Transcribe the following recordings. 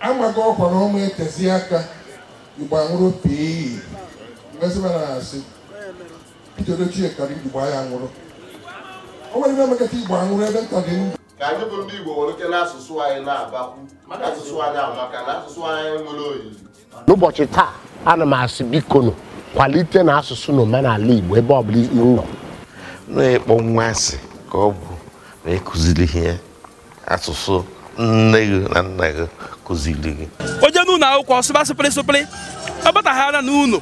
amaghị ọkwa na ọma etezi aka igbo anwụrụ pii asị Peter Ochie kara igbo ya nwụrụ o nwere ihe emekata igbo anwụrụ ebe nta dị ndụ ka anyị bụ ndị igbo nwere oke n'asụsụ anyị na-abakwu maka asụsụ anyị amaka na asụsụ anyị nwere oyiyi n'ụbọchị taa ana m asị bikonu kwalite na asụsụ na omenala igbo ebe ọ bụla nọ na-ekpọ nwa asị ka ọ bụ na ịkụziri ihe asụsụ nne gị na nna gị kụziri gị onye n'ụlọ akwụkwọ sụba sụpịrị sụpịrị ọ bataghara n'ụlọ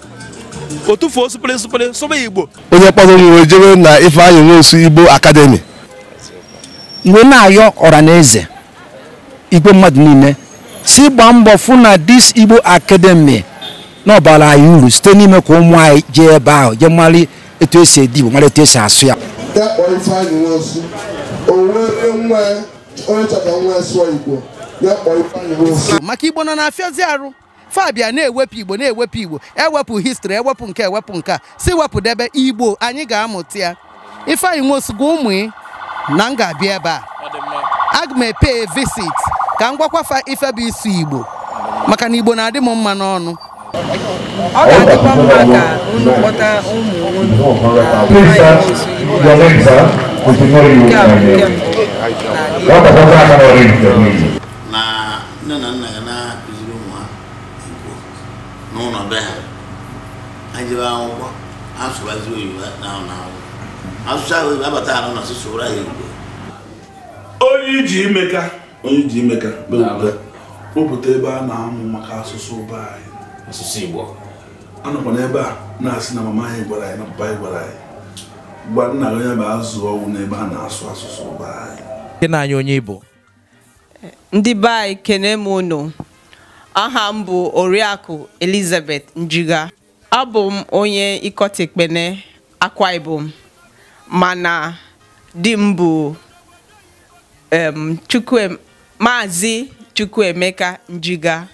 o tufuo sụpịrị sụpịrị sụba igbo onye kpọrọ m wee jebe na Ifeanyi Nwosu Igbo akademi. iwe na-ayọ ọra na eze igwe mmadụ niile si gbaa mbọ fụ na dis Igbo akademi na ọbara anyị uru site n'ime ka ụmụ anyị jee ebe ahụ jee mara etu esi edi Igbo mara etu esi asụ ya onye chọrọ nwa sụọ igbo ya kpọọ Ifeanyi Nwosu maka igbo nọ na afịazi arụ fabia na-ewepụ igbo na-ewepụ igbo ewepụ histri ewepụ nke ewepụ nke a si wepụdebe igbo anyị ga-amụta ya Ifeanyi Nwosu ụmụ ị na m ga-abịa ebe a aga m epe visit ka m gwakwafa ife bụ isu igbo maka na igbo na-adị m mma n'ọnụ ọ ga-adịkwa mma ka unu kpọta ụmụ unu na Ifeanyi Nwosu igbo nke a bụ nke m na nne na nna ya na-akụziri ụmụ ha igbo n'ụlọ be ha ha jebe akwụkwọ asụrazi oyibo asụsụ ahụ abata ahụ na asụsụ ụra ya igbo onye iji imeka onye iji imeka ebe a na-amụ maka asụsụ ụba anyị asụsụ igbo anọkwa n'ebe a na-asị na mama anyị gwara anyị na papa anyị gwara anyị nna onye bụ azụ ọnwụ n'ebe a na-asụ asụsụ ụba anyị Ndị na anyị onye Igbo. Ndị be anyị kene m unu. Aha m bụ Oriakụ Elizabeth Njiga. Abụ m onye Ikotekpene Akwa Ibom mana di m bụ Maazị Chukwuemeka Njiga.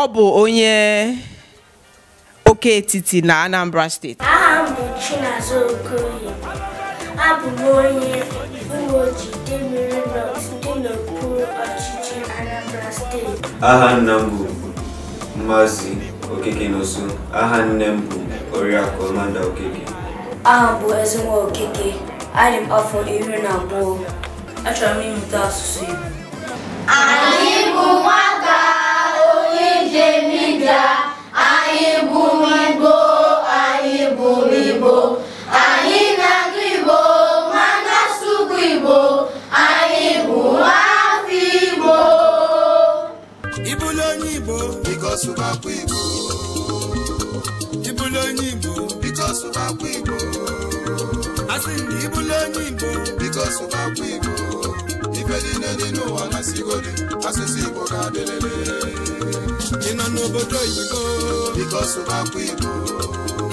ọ bụ onye oke etiti na Anambra steeti. Aha m bụ oke Okoye. abụ m onye uweoji demere dị n'okpuru ọchịchị Anambra steeti aha nna m bụ Maazị Okeke N'Osu aha nne m bụ Oriakụ Amanda Okeke aha m bụ Ezenwa Okeke adị m afọ iri na abụọ achọrọ m ịmụta asụsụ Igbo anyị bụ nwata onye njem ije anyị bụ Igbo anyị bụ Igbo asụmakwa Igbo ịbụla onye Igbo Because sụmakwa Igbo asị m ịbụla onye Igbo biko sụmakwa Igbo ife niile dị n'ụwa na sigodi asụsụ Igbo ga-adịrịrị ị nọ n'obodo Because biko sụmakwa Igbo